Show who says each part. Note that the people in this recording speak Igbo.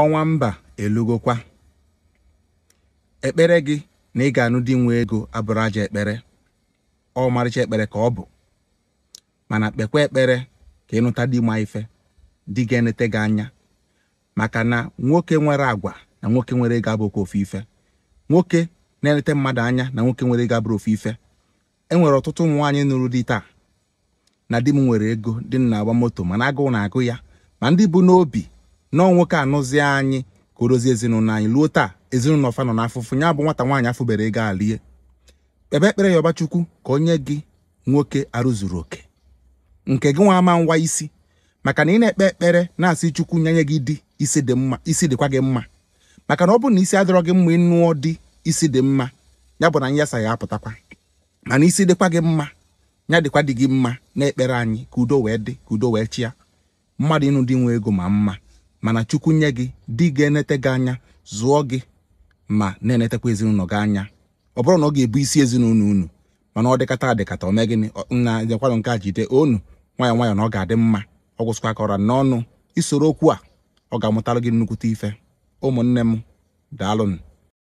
Speaker 1: ọnwa mba elugokwa ekpere gị na ị ga-anụ di nwe ego abụrụ aja ekpere ọmarịcha ekpere ka ọ bụ mana kpekwa ekpere ka ịnụta di ma ife di ga-enete gị anya maka na nwoke nwere agwa na nwoke nwere ego abụkwa ofu ife nwoke na-enete mmadụ anya na nwoke nwere ego abụrụ ofu ife e nwere ọtụtụ ụmụ nwaanyị nụrụ di taa na di m nwere ego di m na-agba moto mana agụụ na-agụ ya ma ndị bụ n'obi nọọ nwoke anụzie anyị ka o dozie ezinụlọ anyị luo taa ezinụlọ fa nọ n'afụfụ ya bụ nwata nwaanyị afụbere ego alie kpebe ekpere ya ọbachukwu ka onye gị nwoke arụzuru oke nke gị nwa ama ngwa isi maka na ị na-ekpe ekpere na-asị chukwu nye gị di isi dị mma isi dịkwa gị mma maka na ọ bụrụ na isi adịrọ gị mma ịnụọ di isi dị mma ya bụ na nyasa ya apụtakwa mana isi dịkwa gị mma ya dịkwa dị gị mma na ekpere anyị ka udo wee dị ka udo wee chịa mmadụ ịnụ dị nwe ego ma mma mana chukwu nye gị di ga-enete gị anya zụọ gị ma na-enetekwa ezinụlọ gị anya ọ bụrụ na ọ ga-ebu isi ezinụlọ unu mana ọ dịkata adịkata ome gịnị na dekwanụ nke a jide onu nwayọ nwayọ na ọ ga-adị mma ọ gwụsịkwa ka ọra n'ọnụ isoro okwu a ọ ga-amụtara gị nnukwute ife ụmụnne m daalụnụ